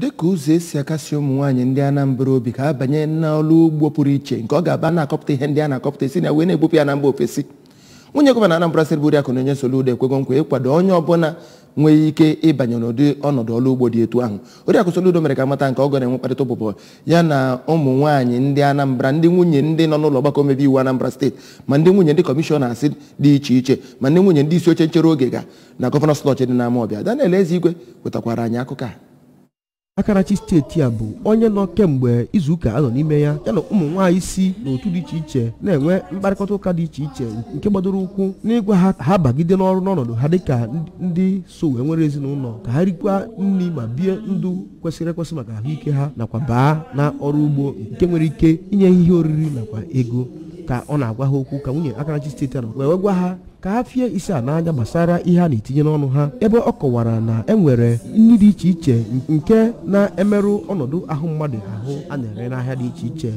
dịka ụzọ esi akasi ụmụ nwaanyị ndị Anambra obi ka abanye n'ọlụ ugbo pụrụ iche nke ọ ga-aba na-akọpụta ihe ndị a na-akọpụta esi na wee na-ebupụ ya na mba ofesi nwunye gọvanọ Anambra Steeti Akụ na onye Soludo ekwego nkwa ịkwado onye ọbụla nwee ike ịbanye n'ụdị ọnọdụ ọlụ ugbo dị etu ahụ Oriakụ Soludo mere ka mata nke ọgọ na-enwe mkparịta ụbụbọ ya na ụmụ nwaanyị ndị Anambra ndị nwunye ndị nọ n'ụlọ ọgbakọ omebe iwu Anambra Steeti ma ndị nwunye ndị kọmishọna asị dị iche iche ma ndị nwunye ndị isi oche nchere oge ga na gọvanọ slọch dị n'ama ọbịa Daniel Ezigwe wetakwara anyị akụkọ a Akarachi steeti a bụ onye nọ kemgbe izuụka anọ n'ime ya yana ụmụ nwaanyị si n'otu dị iche iche na-enwe mkparịkọta ụka dị iche iche nke gbadoro ụkwụ n'ịgwa ha ha bagide n'ọrụ n'ọnọdụ ha dịka ndị so wee nwere ezinụlọ ka ha rikwa nri ma bie ndụ kwesịrị ekwesị maka ahụike ha nakwa baa na ọrụ ugbo nke nwere ike inye ihe oriri nakwa ego ka ọ na-agwa ha okwu ka nwunye Akarachi steeti nọ wee gwa ha ka ha fie isi a n'anya gbasara ihe a na-etinye n'ọnụ ha ebe ọ kọwara na e nwere nri dị iche iche nke na-emerụ ọnọdụ ahụ mmadụ ahụ a na-ere n'ahịa dị iche iche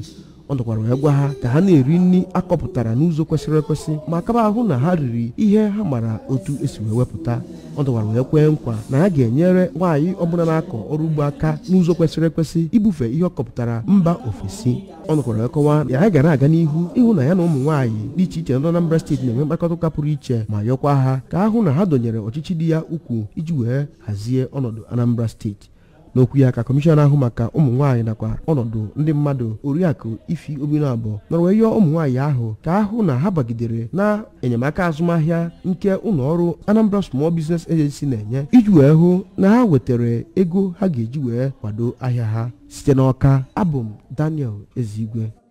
ọ nọkwara wee gwa ha ka ha na-eri nri akọpụtara n'ụzọ kwesịrị ekwesị ma kaba ahụ na ha riri ihe ha mara otu esi wee wepụta ọ dọkwara wee kwee nkwa na ha ga-enyere nwaanyị ọbụla na-akọ ọrụ ugbo aka n'ụzọ kwesịrị ekwesị ibufe ihe ọ kọpụtara mba ofesi ọ nọkwara kọwa na ya gara aga n'ihu ịhụ na ya na ụmụ nwaanyị dị iche iche nọ Anambra steeti na-enwe mkpakọta ụka pụrụ iche ma yọkwa ha ka ahụ na ha dọnyere ọchịchị dị ya ukwuu iji wee hazie ọnọdụ Anambra steeti n'okwu ya ka kọmishọn ahụ maka ụmụ nwaanyị nakwa ọnọdụ ndị mmadụ oriakụ ifi obinu abụọ nọrọ wee yọọ ụmụ nwaanyị ahụ ka ahụ na ha bagidere na enyemaka azụmahịa nke ụlọ ọrụ Anambra Small Business Agency na-enye iji wee hụ na ha wetara ego ha ga-eji wee kwado ahịa ha site n'ọka abụ m Daniel Ezigwe